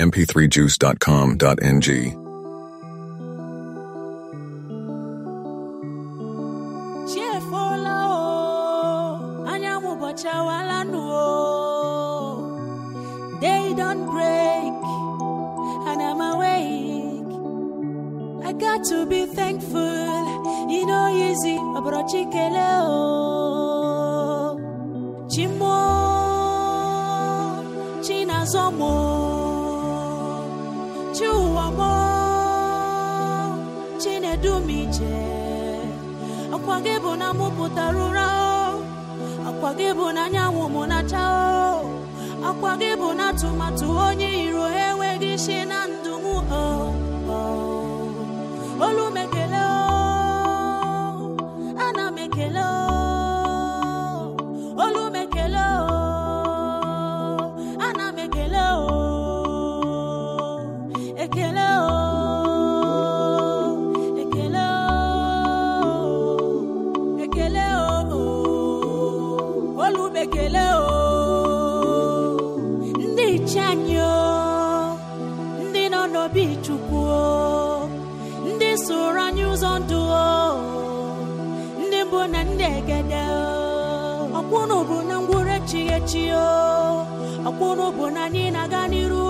mp3juice.com.ng. Day don't break, and I'm awake. I got to be thankful, you know, easy. Abrochi keleo, Chimo, China chi ụwa mụọ chinedu m ije akwa gị bụ na mụ pụtara ụra akwa gị bụ na anyanwụ m na-acha akwa gị bụ na atụmatụ onye iro enweghị isi na olubekele o ndị iche anyị o ndị nọ n'obi o ndị soro anyị ụzọ ndụ o ndị mbụ na ndị egede ooo! bụ na ngwụrụ echighị echi o bụ na anyị na-aga n'iru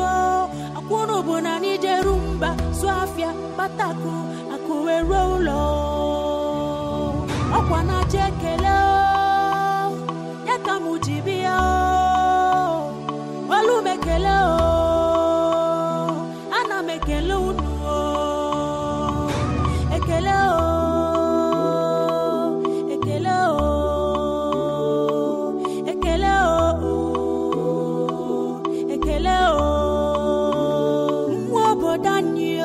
o bụ na anyị jeru mba zụ afịa kpatakụ akụ wee ruo ụlọ ọkwa na-acha ekele o ekele unu ekele ekele ekele ekele obodo anyị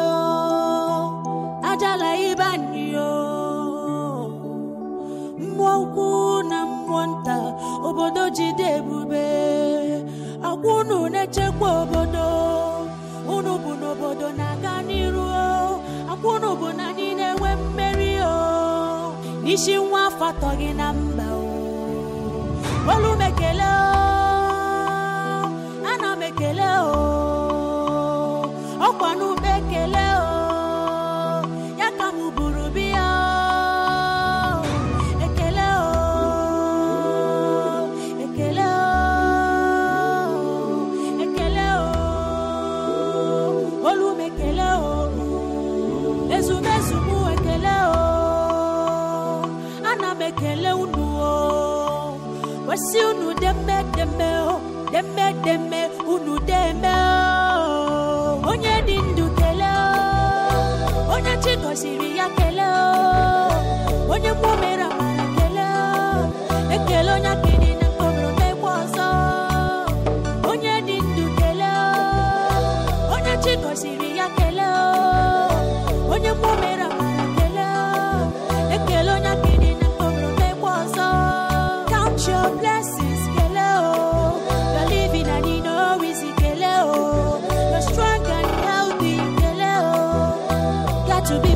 ajala ibe anyị mmụọ na mmụọ nta obodo jide ebube akwụnụ na-echekwa obodo isi nwa afọ atọ gị na mba olu m ekele ana m ekele ọkwa n'ụba ekele ya ka m buru biya ekele ekele ekele olu m ekele ezumezu wasi unu demedeme o oh, unu deme o oh. onye dị ndụ